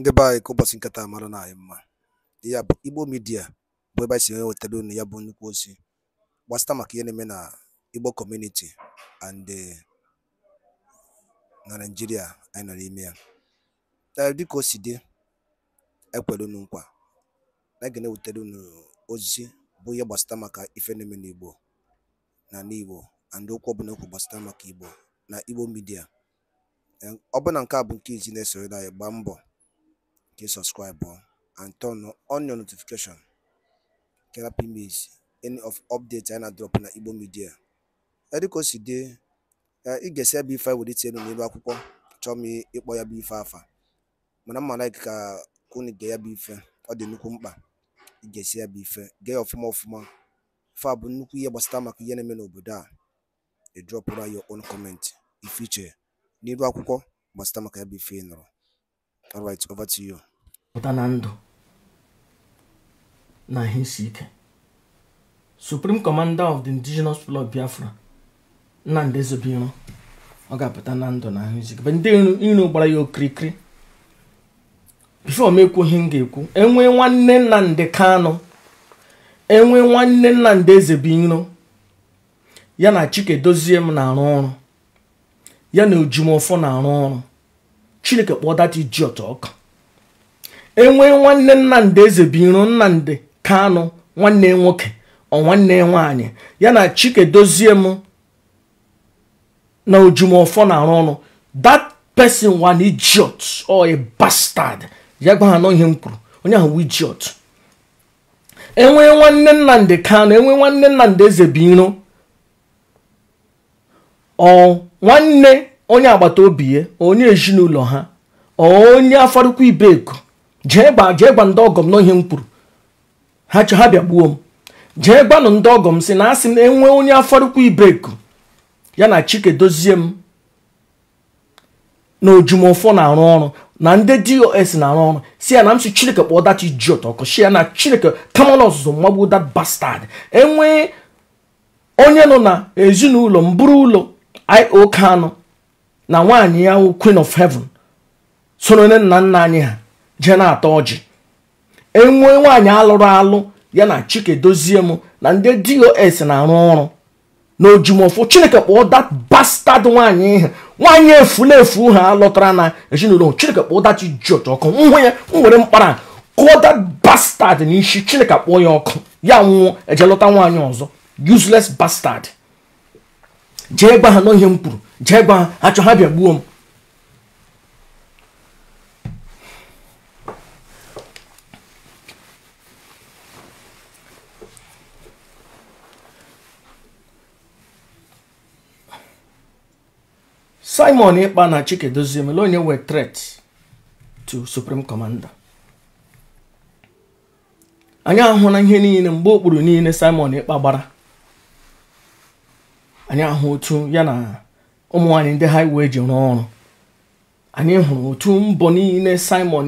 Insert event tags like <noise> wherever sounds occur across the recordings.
ndị be anyị ka ụbọchị nketa mara na anyị mma ya bụ igbo midia bụ ebe anyị si ewetara unu ya bụ nnukwu ozi gbasịta maka ihe na-eme na igbo kọmuniti and eh, na naijiria anyị nọ n'ime ya eh, dịka o si dị ekwere unu nkwa na ga na-ewetara unu ozi bụ ihe gbasata maka ife na-eme n'igbo na n'igbo and okwu ọbụla okwu gbasịta maka igbo na igbo midia eh, ọ bụ na nke a bụ nke izi na-esoro anyị gbaa mbọ Click subscribe and turn on your notification ka ị any of updates anyị na drop na Igbo Media ediko si dị eh, ị ga ife anyị welite elu n'elu akwụkwọ chọọ m ịkpọ ya bụ ife afa mana mma like ka unu gee ya bụ ife ọ dị nnukwu mkpa ị ga-esi ya ife gee ya ọfụma ọfụma ife a bụ nnukwu ihe gbasta maka ihe na-eme a ị drọpụra your own comment ife akwụkwọ gbasara maka ya bụ ife all right over to pụta na ndụ na ihe isi ike supreme commander of the indigenous people of biafra nnamdị ezobiro ọ ga-apụta na ndụ na ahụ isi ndị iro gbara ya okirikiri bifo m ekwughị m ga-ekwu enwe nwanne nnamdị kanụ enwe nwanne nnamdị ezebiro ya na chike dozie m na-arụ ọrụ ya na ojumọfọ na-arụ ọrụ chineke kpọọ data ijiọtọ ọkụ. enwee nwanne nnamdị eze biro nnamdị kanụ nwanne nwoke ọ nwanne nwaanyị ya na dozie m na ojumọfọ na-arụ ọrụ that person wan idiot or a bastard ya gwa ha m kwuru onye ahụ idiot enwee nwanne nnamdị kanụ enwee nwanne nnamdị eze biro ọ nwanne onye agbata obi ya onye ezinụlọ ha onye afarukwu ibeko jee gba jee gba ndị ọgọ m m kwuru ha chọ ha bịa gbuo m jee gbanụ ndị ọgọ m si na asị na enwee onye afọrụkwa ibeku ya na chike dozie m na ojumọfọ na-arụ ọrụ na ndị dos na-arụ ọrụ si ya na m si chineke kpọọ dachi ji ọtọkọ ya na chineke kamala ọzụzụ mmagbu dat bastad enwee onye nọ na ezinụlọ mburu ụlọ io kano na nwaanyị ya queen of heaven soro nne nna nna anyị ha jee na-ata ọjị enwee nwaanyị alụrụ alụ ya na dozie m na ndị dos na-arụ ọrụ na ojumọfụ chineke kpọọ nwaanyị bastard nwaanyị ihe nwaanyị efu ha lọtara na ezinụlọ chineke kpọọ that jọt ọkụ nhụ ya m were mkpara kụọ bastad na n'isi chineke kpọọ ya ọkụ ya nwụọ eje lọta nwaanyị ọzọ useless bastad jee gwa ha n'ihe m kwuru jee gwa ha achọ ha bịa gbuo m simon ikpa na chike dozie mele onye were threat to supreme commander anyị ahụ na ihe niile mgbe okpuru niile simon ikpa gbara anyị ahụ otu ya na ụmụ nwaanyị ndị haiwe ji rụọ ọrụ anyị hụrụ otu mbọ niile simon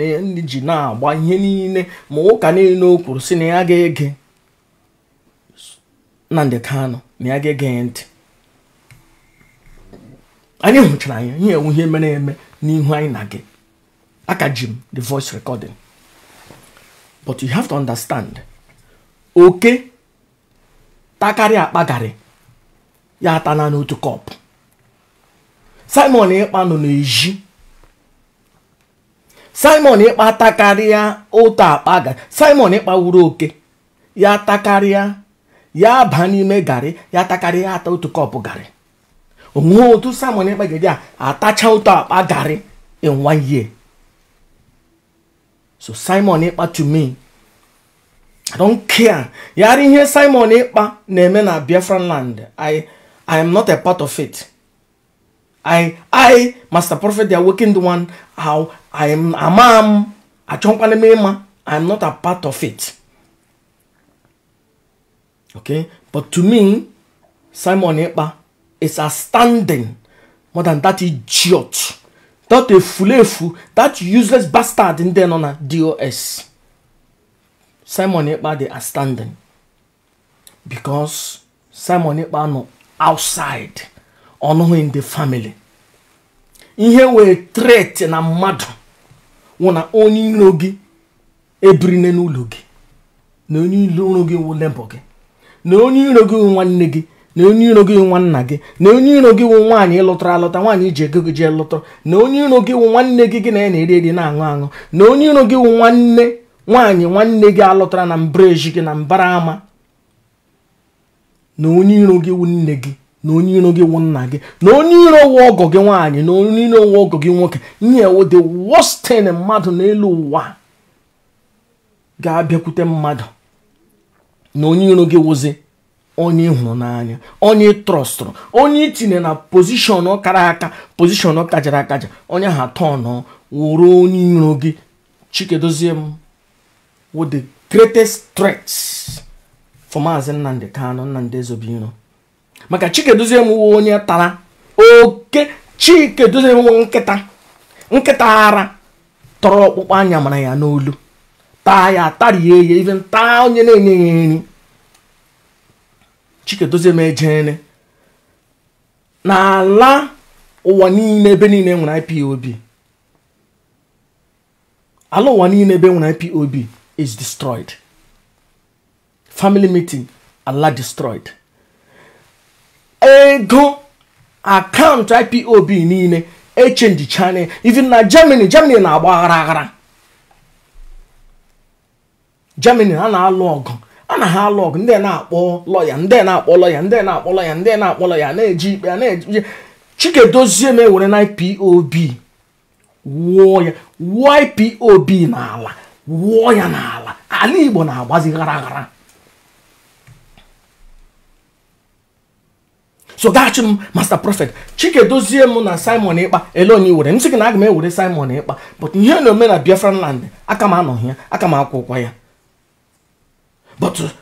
ji na-agba ihe niile ma ụka niile o kwuru si na ya ga-ege ndị kano na ya ga-ege ntị anyị hụchara anya ihe enwe ihe mere eme n'ihu anyị na gị aka ji m the voice recording but you have to understand oke takarịa akpagarị ya atana n'otu kọpụ simon ịkpa nọ n'ezi simon ịkpa takarịa otu akpa garị simon ịkpa wuru oke ya takarịa ya aba n'ime garị ya takarịa ata otu kọpụ garị onwe otu Simon Ekpegede a atacha ụtọ akpa garị in one year so Simon ịkpa to me I don't care yara ihe Simon ịkpa na-eme na Biafran land I I am not a part of it I I Master Prophet the Awakened One how I am amam achọkwana m ịma I am not a part of it okay but to me Simon ịkpa. is outstanding more than that idiot that efulefu that useless bastard ndị nọ na dos simon ikpa dey outstanding because simon ikpa no outside ọnụhụ in the family ihe wee threat na mmadụ wụ na onye iro gị ebirine n'ụlọ gị na onye iro gị wụ lebọ gị na onye iro gị nwanne gị na onye iro gị nwa nna gị na onye iro gị wụ nwaanyị ịlụtara alụta nwaanyị iji ego gị jee lụtara na onye iro gị wụ nwanne gị gị na ya na-eri eri na-aṅụ aṅụ na onye iro gị wụ nwanne nwaanyị nwanne gị alụtara na mbreji gị na mbara ama na onye iro gị wụ nne gị na onye iro gị wụ nna gị na onye iro wụ ọgọ gị nwaanyị na onye iro wụ ọgọ gị nwoke nye wo the wọstin mmadụ n'elu ụwa ga-abịakwute mmadụ na onye iro gị wụzi onye ịhụrụ hụrụ n'anya onye ị onye itinye na pozishọn kara aka pozishọn kajara akaja onye ahụ atọ wụrụ onye iro gị chikedozie m wụ the greatest threat for maazị nnamdị kanụ nnamdị ezobiro maka chikedozie m wụ onye tara oke chike m nwe nkịta nkịta ara tọrọ ọkpụkpa anya mara ya n'olu taa ya tarie ya even taa onye na-enye ya nri chikedozie na n'ala ụwa niile ebe niile nwere ipob ala ụwa niile ebe nwere ipob is destroyed family meeting ala destroyed ego akaụntụ ipob niile echenji channel even na germany germany na-agba aghara aghara germany a na-alụ ọgụ a na ha alụ ọgụ ndị na-akpọ lọya ndị na-akpọ lọya ndị na-akpọ lọya ndị na-akpọ lọya na-eji ikpe na-eji chike dozie m ewere na ipob wụọ ya wụọ ipob n'ala wụọ ya n'ala ala igbo na-agbazi ghara ghara so gaghachi m master prọfet chike dozie m na simon ịkpa ele onye were m gị na aga m ewere simon ịkpa but ihe na omena na biafra land aka m anọghị ya aka m akwụkwa ya but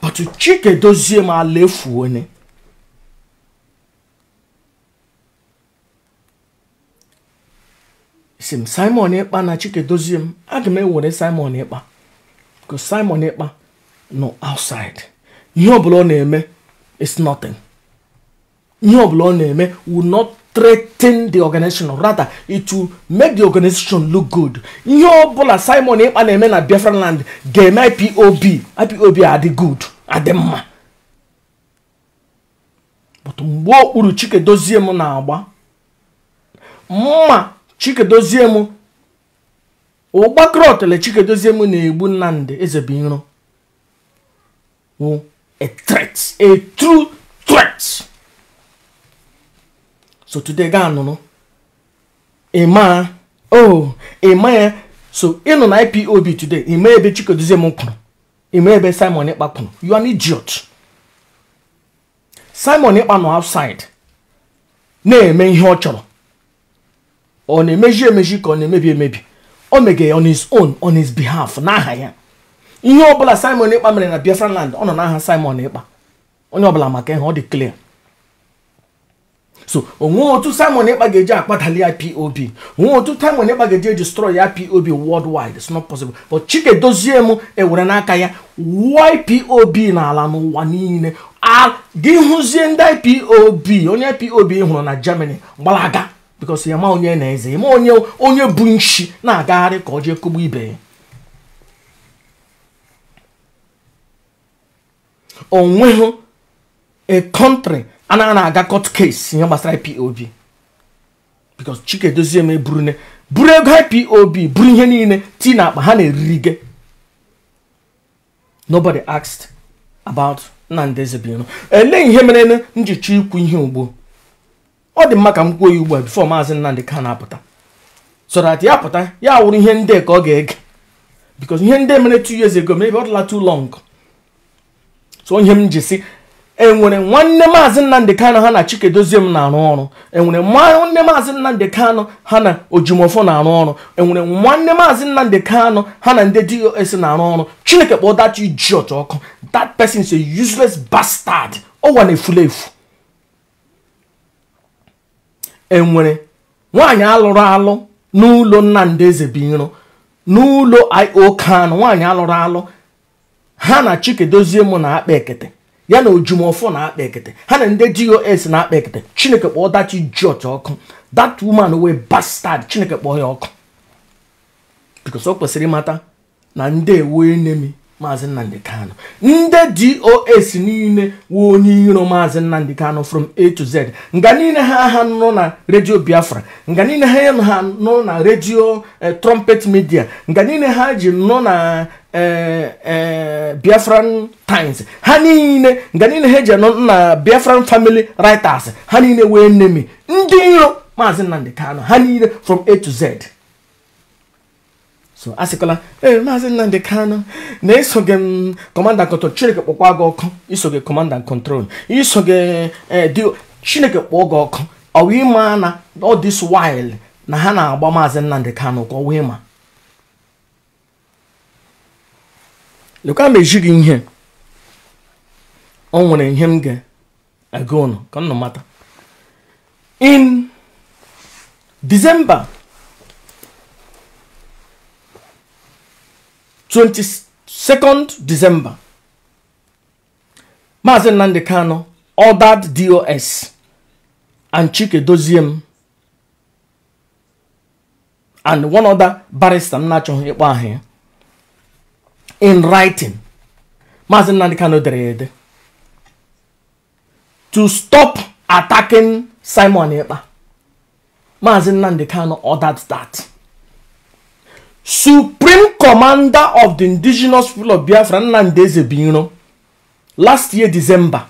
but chike dozie m ala efu onye m simon ịkpa na chike dozie m aga m ewere simon ịkpa bụ simon ịkpa nọ outside ihe ọbụla ọ na-eme is nothing ihe ọbụla ọ na-eme will not threaten the organization rather it will make the organization look good ihe ọbụla simon ịkpa na-eme na biafra land ga-eme ipob ipob adị good adị mma but mgbe okpuru chikedozie m na-agba mma chikedozie m ụgbakrọtele chikedozie m na-egbu nnamdị ezebiro a threat a true threat so today gaa nụrụ ịmaa e oh ịma e ya so ịnụ e na ipob today ịma ebe chikoduzie m kwuru ịma ebe simon ịkpa kwuru you simon ịkpa nọ outside na-eme ihe ọ chọrọ ọ na-emeji emeji ka ọ na-emebi emebi o mege on his own on his behalf n'aha ya ihe ọbụla simon ịkpa mere na biafra land ọ nọ n'aha simon ịkpa onye ọbụla maka ihe ọ dị clear so onwe otu simon ekpa ga-eji akpatali ya onwe otu simon ekpa ga-eji edestroy ya pop worldwide it's not possible chike dozie m ewere n'aka ya na ala n'ụwa niile gị hụzie ndị ipob onye pop hụrụ na germany gbalaga because ya ma onye na-eze ma onye onye bụ nshi na-agagharị ka ọ jee ibe ya onweghị a anaghị na-aga court case ihe gbasara ipob because chike dozie m eburu buru ego ipob buru ihe niile ti na akpa ha na-eriri gị nobody asked about nnamdi ezebinu ele ihe mere njicha ikwu ihe ugbo ọ dị mma ka m kwuo ya ugbu a bifo maazị nnamdị ka na-apụta so that ya pụta ya wụrụ ihe ndị ka ọ ga-ege because ihe ndị mere two years ago mebe ọ dịla too long so ihe m ji si enwere nwanne maazị nnamdị Kano ha na chikedozie m na-arụ ọrụ enwere nwanne maazị nnamdị Kano ha na ojimọfọ na-arụ ọrụ enwere nwanne maazị nnamdị Kano ha na ndị dos na-arụ ọrụ chineke kpọọ that idiot ọkụ that person is a useless bastard ọwa na-efula efu enwere nwaanyị alụrụ alụ n'ụlọ nnamdị eze binro n'ụlọ io kanụ nwaanyị alụrụ alụ ha na chikedozie m na-akpa ekete ya na ojumọfọ na-akpa ekete ha na ndị dos na-akpa ekete chineke kpọọ dachi george ọkụ that woman wee bastard chineke kpọọ ya ọkụ because o kwesịrị ịmata na ndị ewu enemi maazị nnamdị kanu ndị dos niile wee onye iro maazị nnamdị kanu from a to z nga niile ha ha nọ na redio biafra nga niile ha ha nọ na redio eh, trumpet midia nga niile ha ji nọ na Eh, eh, biafran times ha niile nga niile ha eji anọ na biafran family writers ha niile wee nemi ndị iro maazị nnamdị ha niile from a to z so asịkwala ee eh, maazị nnamdị kano na-eso gị m kọmanda kọntrol chineke kpọkwa gị ọkụ iso gị kọmanda kọntrol iso gị chineke kpọọ gị ọkụ ọwa ịma na ọ this while na ha na-agba maazị nnamdị kano ka ọ wee ma lekwa eji gị ihe ọ nwere ihe m ga-aga ụnụ ka nnụ mata in December 22nd December Maazị Nnamdi nọ ordered DOS and Chike Doziem and one other barrister m na-achọghị ịkpọ ya in writing Maazị nnadi Kanu dere ede to stop attacking Simon Ekpa Maazị Nnamdi Kanu ordered that Supreme Commander of the Indigenous People of Biafra Nnamdi Ezebiro last year December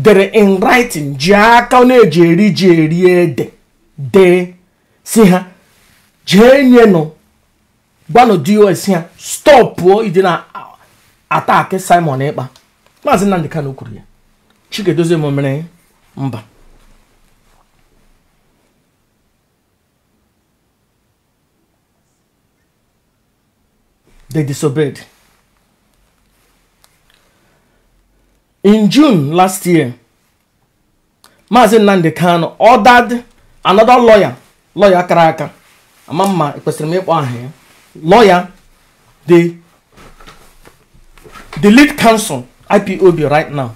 dere in writing ji aka na-eji eri ji eri ede dee si ha jee nyenu gwanụ dos ya stọpụọ ịdị na ataki simon ịkpa maazị nnamdị kanu kwuru ya chikedozie m mere mba they disobeyed in june last year maazị nnamdị kanu ordered another lawyer lawyer kara aka ama mma kwesịrị m ịkpọ aha ya lawyer, the, the lead counsel, IPOB right now,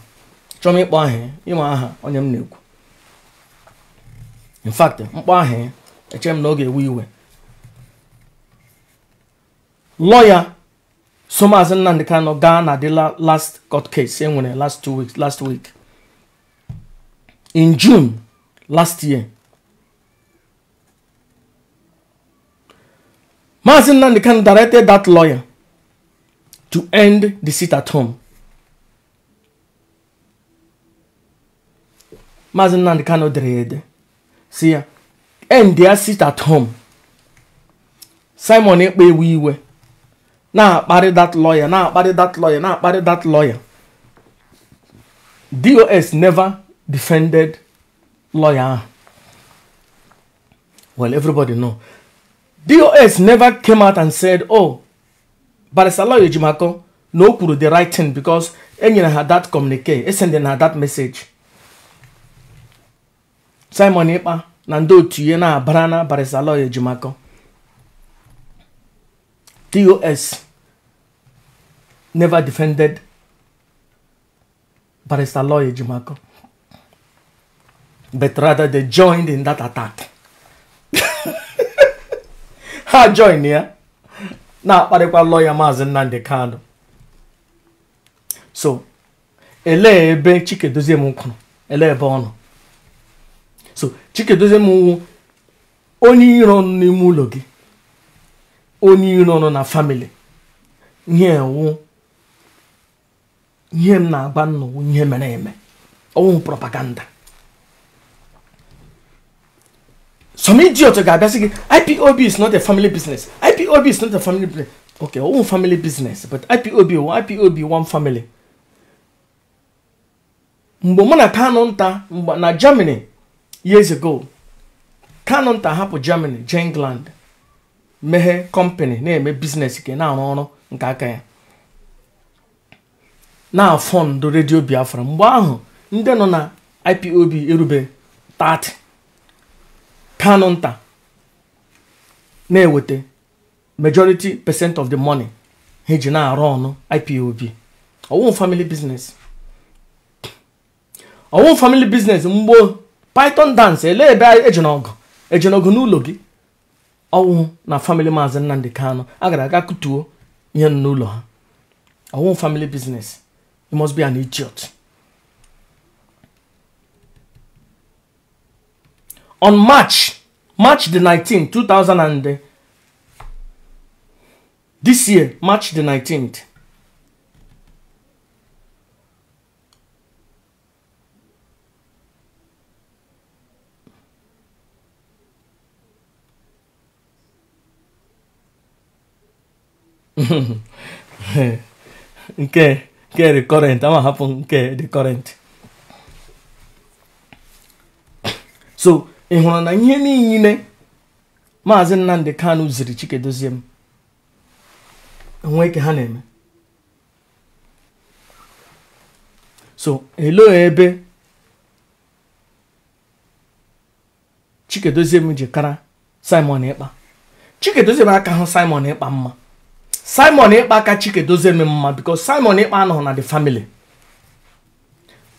chọrọ ịkpọ aha ịma aha onye m na-ekwu in fact mkpọ aha echere m na ọ ga-ewe iwe lawyer Somazi Nnamdi Kanu gaa na the last court case e nwere last two weeks last week in June last year Mazin Nandikan directed that lawyer to end the sit at home. Mazin Nandikan odere si ya end their sit at home. Simon Ekpe ewe iwe na-akparị that lawyer na-akparị that lawyer na-akparị that lawyer. DOS never defended lawyer ah! Well, everybody know. DOS never came out and said, oh, Lawyer Jimako, no do the right thing because anyone had that communique sending her that message Simon Epa, Nando ndị Brana, ihe na-abara na Barisala DOS never defended Lawyer Jimako, but rather they joined in that attack <laughs> ha join ya na-akparịkwa lọya maazị Nnamdi Kanu so elee ebe Chikedozie kwuru elee ebe ọ nọ so Chikedozie wụ onye iro ọnụ n'ime ụlọ gị onye iro ọnụ na famili ihe ewu ihe m na-agba nnọwụ ihe mere eme ọnwụ propaganda some idiot ga-abịasị gị ipob is not a family business ipob is not a family business okay own family business but ipob oh, ipob one family mgbe mụ na kanu nta na germany years ago kanu nta hapụ germany jee england meghe company na-eme business nke na-arụ ọrụ nke aka ya na fọndụ redio biafra mgbe ahụ ndị nọ na ipob erube 30 kanu nta na-eweta majority percent of the money ha eji na-arụ ọnụ ipob ọwụ family business mgbo python dance ele ebe ejinogo ejinogo n'ụlọ gị ọwụ na family maazị nnamdị kano a gara aga kutuo ihe n'ụlọ ha ọwụ family business must be an idiot. on March, March the 19th, 2000 and uh, this year, March the 19th. okay, okay, the current. I'm happen. Okay, the current. So ị na ihe niile maazị Nnamdi Kanu ziri Chikedozie m e nweke ha na-eme so elo ebe Chikedozie m ji kara Simon Ekpa Chikedozie m aka hụ Simon Ekpa mma Simon Ekpa aka Chikedozie m mma because Simon Ekpa anọghị na the family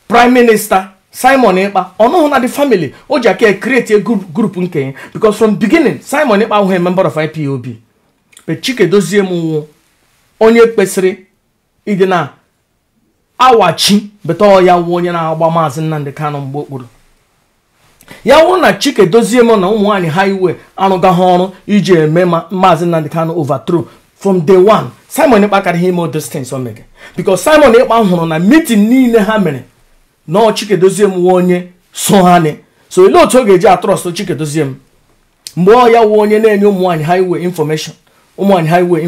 prime minister simon ịkpa ọnụhụ na the family o ji aka create a group nke ya because from beginning simon ịkpa ahụghị member of ipob chike dozie m nwụ onye kpesịrị ịdị na awachi beta ya wuo onye na-agba maazị nnamdị kanụ mgbe okporo ya wụrụ na chike dozie m na ụmụnwaanyị ha iwe arụgaghị ọrụ iji eme maazị nnamdị kanụ overthrow from day one simon ịkpa karịghị ime distance o mere simon ịkpa hụrụ na meeting niile ha mere nọọ chikedozie m nwa onye so ha so olee otu ọ ga-eji atrọst chikedozie m mgbe ọ ya wụ onye na-enye ụmụ nwaanyị highway information ụmụ nwaanyị highway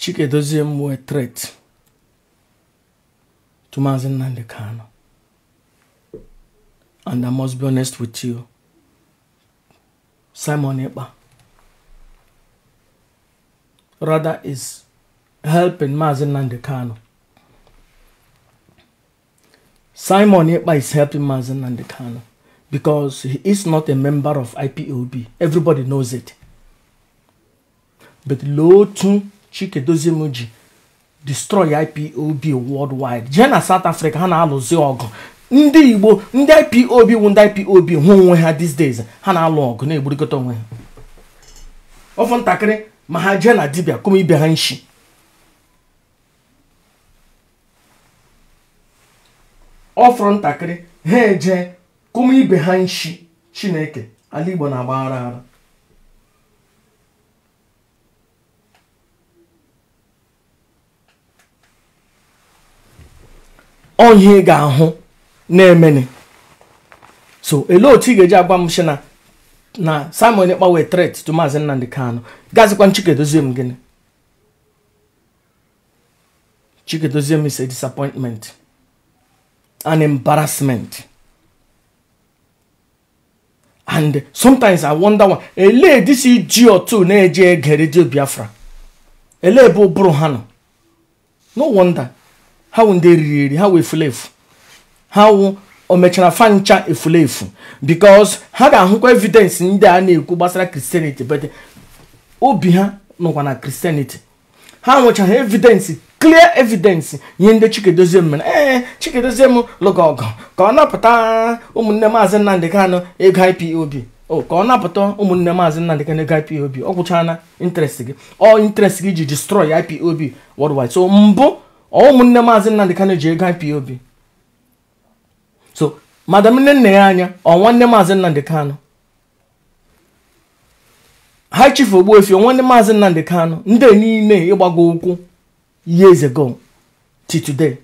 Chikedozie Mwe threat to Mazen Nandekano. And I must be honest with you, Simon Eba rather is helping Mazen Nandekano. Simon Eba is helping Mazen Nandekano because he is not a member of IPOB. Everybody knows it. But Lotu chike ji destroy IPOB worldwide jee na South Africa ha na-alụzi ọgụ ndị Igbo ndị IPOB wụ ndị IPOB hụ onwe ha these days ha na-alụ ọgụ na-egburikọta onwe ha ọfụ ntakịrị ma ha jee na dibịa kụma ibe ha nshi ọfụrụ ntakịrị ha eje kụma ibe ha nshi Chineke ala Igbo na-agbaghara ara onye ị ga-ahụ na-emeni so ele otu ị ga-eji agwa m sị na na Simon Ekpa wee tret to Maazị Nnamdi Kanu gazikwa Chike doziem gịnị Chike doziem is a disappointment an embarrassment and sometimes I wonder why ele dis iji otu na-eje ege redio Biafra ele ebe ụbụrụ ha nọ no wonder ha wụ ndị eriri eri ha wụ efu ha wụ o mechara fancha efulefu because ha ga-ahụkwa evidence ndị a na-ekwu gbasara kristianity but obi ha nọkwa na kristianity ha nwechara evidence clear evidence nye ndị chikedozie mere ee chikedozie m lụga ọgụ ka ọ napụta ụmụnne maazị Nnamdị Kanụ ego IPOB ka ọ napụta ụmụnne maazị Nnamdị Kanụ ego IPOB ọ gwụchana interest gị ọ interest gị ji destroy IPOB worldwide so mbụ ụmụnne maazị Nnamdị Kanu ji ego IPOB so madam nne nne ya anya ọ nwanne maazị Nnamdị Kanu ha chifu Ogbuefi nwanne maazị Nnamdị Kanu ndị niile ịgbago ụkwụ years ago till today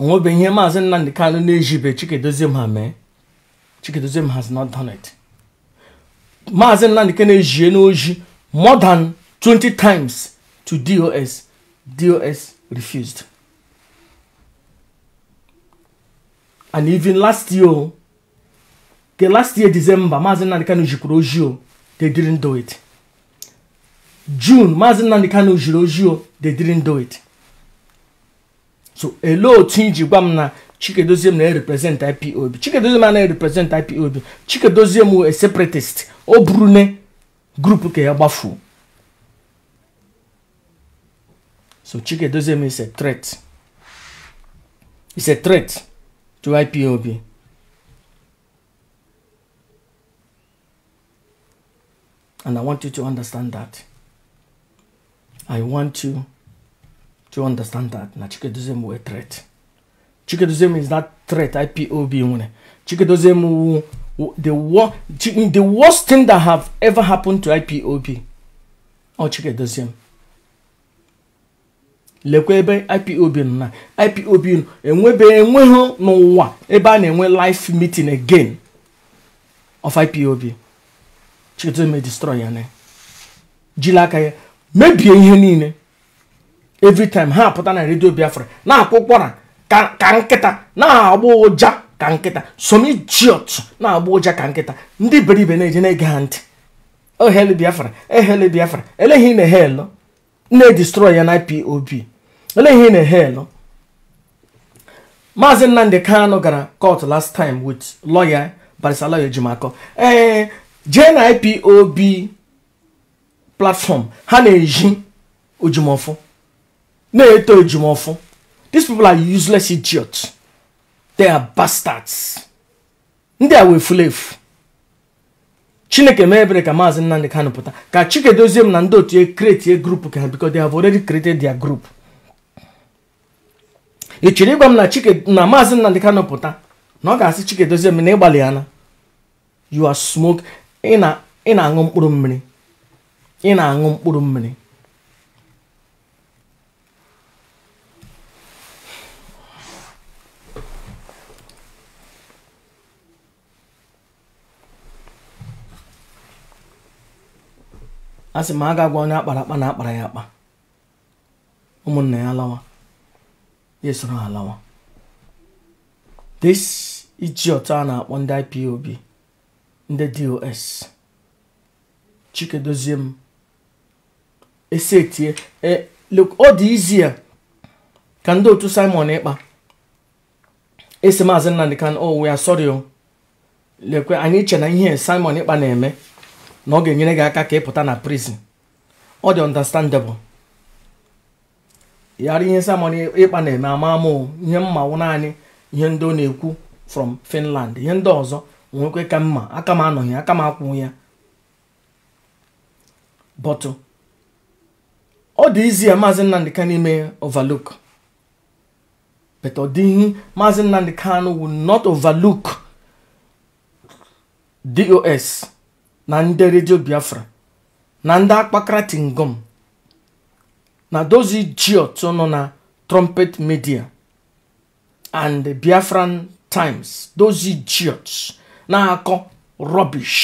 onwebeghị ihe maazị nnamdị kanụ na-ejibe chikedozie ha mee chikedozie has not done it maazị nnamdị ka na-ejie n'oji more than 20 times to dos dos refused and even last year the last year december maazị nnamdị kanụ jikwuru oji o they didn't do it june maazị nnamdị kanụ jiri oji o they didn't do it so elee otu iji gwa m na chikedozie m na-erepresent ipob chikedozie m anaghị represent ipob chikedozie m a separatist o buru ne grupu ka ya gbafuo so chikedozie m is a threat is a threat to ipob and i want you to understand that i want you Do you understand that? Na Chikedozemu were threat. Chikedozemu is not threat, IPOB. one. Chikedozemu, the, wor the worst thing that have ever happened to IPOB. Oh, Chikedozemu. lekwa ebe ipob nọ na ipob nọ enwebe enweghị n'ụwa ebe a na-enwe life meeting again of ipob chiketo me e destroy ya na jiri aka e ya mebie ihe niile every ha apụta na redio biafra na-akụ ụkwara ka nkịta na-agba ụja ka nkịta somijiot na-agba ụja ka nkịta ndị beribe na-eje na-ege ha ntị ohel oh, biafra ehel eh, biafra eleghị na hel na-edestroy ya na ipob eleghị na hel maazị nnamdị kano gara court last time loya lawyer barisalayo ejimakọ ee eh, jee na ipob platform ha na-eji ojumọfụ na-eto ejumọfụ these people are useless idiots they are bastards ndị a wee fulefu chineke mee ebere ka maazị nnamdị kanụ pụta ka chikedozie m na ndị otu kretie e grup ka because they have already created their group ị chịrị ịgwa m na chike na maazị nnamdị kanụ pụta na ọ ga-asị chikedozie m na ịgbalị ya na you are smoke ị na-aṅụ mkpụrụ mmiri ị aṅụ mkpụrụ mmiri a sị m a ga onye akpara akpa na akpara ya akpa ụmụnna ya alawa ya esoro ha alawa this otu a na-akpọ ndị IPOB ndị DOS Chike dozie m esetie e, ọ dị izie ka ndị otu Simon ịkpa esi maazị Nnamdi Kanu oh ya sorry o oh. lekwe anyị che na ihe Simon ịkpa na-eme na ọ ga-enyere gị aka ka ị pụta na prison ọ dị understandable yara ihe samon ịkpa na-eme ama amụ ihe mmanwụ naanị ihe ndị ọ na-ekwu from Finland ihe ndị ọzọ nwekwe ka mma aka m anọghị aka m akwụ ya bọtụ ọ dị izi ya maazị Nnamdi Kanu ime overlook but ọ dịghị maazị Nnamdi Kanu will not overlook DOS na ndị redio biafra na ndị akpakara tingom na dozi jiot nọ na trumpet media and biafran times dozi jiot na-akọ rubbish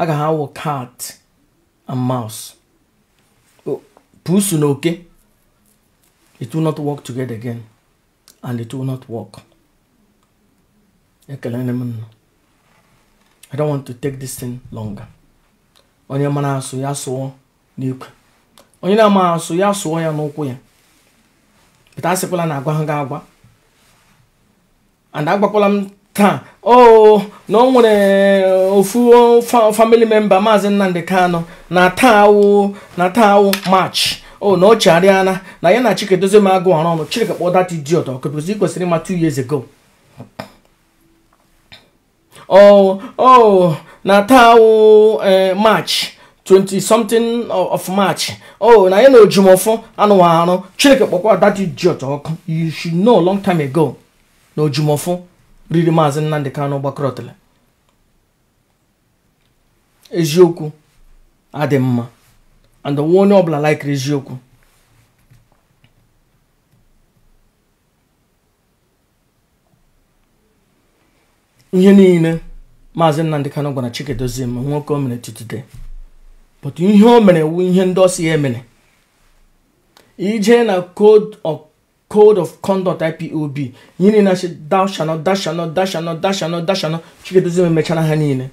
a ga ha awụ cat and mouse oh, pusu na oke it will not work together again and it will not work ekelere m nnụ I don't want to take this thing longer. onye mara asụ ya sụọ n'ikwe onye na-ama asụ ya sụọ ya n'ụkwụ ya pụta asịkwala na agwa ha ga agwa and agbakwala m taa oh na ọ nwere ofu family member maazị Nnamdi Kanu na taa awụ na taa march oh, o na ọ chegharịala na ya na Chike dozie Doziem agụ ọrụ ọnụ Chike kpọọ that idiot ọkụ because i kwesịrị ịma two years ago oh oh na taa o eh, march 20 something of march oh na ya na ojumọfọ anụghị arụ chineke kpọkwa that idiot ọkụ you should know long time ago na ojumọfọ riri maazị nnamdị kanụ gbakọrọtara eziokwu adị mma and onye ọbụla like eziokwu ihe niile maazị Nnamdị Kanụ gwara Chikedozie nwoke o mere tutute but ihe o mere wu ihe ndị ọsị ya emere ije na code of conduct ipob ihe niile achị dashanọ dashanọ dashanọ dashanọ dashanọ Chikedozie emechara ha niile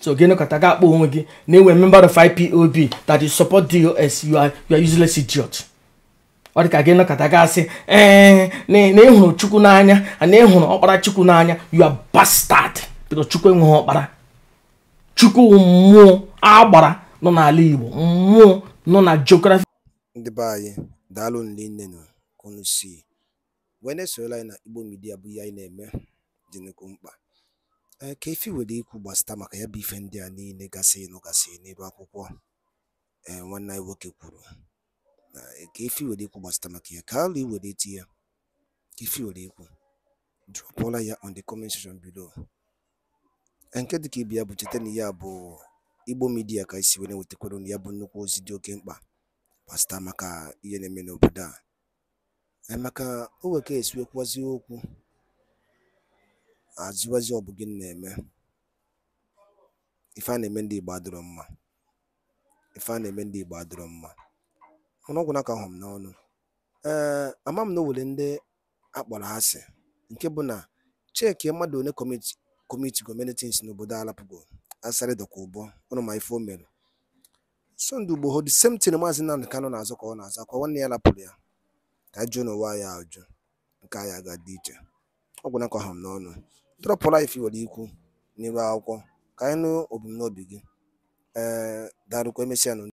so gịnị kọta ga-akpọ onwe gị na enwe member of ipob that you support dos you are, you are useless idiot ọ dị ka gị nọkọta gasị ee na ị hụrụ chukwu n'anya na ị hụrụ ọkpara chukwu n'anya you are bastard chukwu enweghị ọkpara chukwu mmụọ agbara nọ n'ala igbo mmụọ nọ na geography ndị be anyị daalụ nne unu si na-esorola anyị na igbo midia bụ ihe anyị na-eme dị nnukwu mkpa ka efi were ikwu gbasata maka ya bụ ife ndị a niile gasị nụ gasị n'ebe akwụkwọ nwanne anyị nwoke kwuru ka efi were ịkwụ gbasata maka ya ka alụ were eti ya ka were ịkwụ dropụọla ya on the comment section below nke dịka ibe ya bụ cheta na ya bụ igbo midia ka isi were wetakwara ya bụ nnukwu ozi dị oke mkpa gbasata maka ihe na-eme n'obodo a emeka o nweka esiwekwazi okwu azụwazi ọ bụ gị na-eme ife a na-eme ndị Igbo adịrọ mma ife a na-eme ndị Igbo adịrọ mma ọnụọgwụ naka hụm n'ọnụ ee ama m na o were ndị akpọrọ asị nke bụ na cheki mmadụ one kọmiti gọmentins n'obodo alapụgo asarị dọkwa ụbọ ọnụ ma ife o mere sọnde ugbo hod semtin maazị nnamdị kanụ na-azụ ka ọ na-azụ akwa nwanne ya lapụrụ ya ka jụọ n'ụwa ya ajụ nke anyị aga dị iche ọgwụ nakọ ha m n'ọnụ drọpụ laif nwere ikwu n'iru akwụkwọ ka anyị nụ ebumnobi gị ee darụkwa emesịa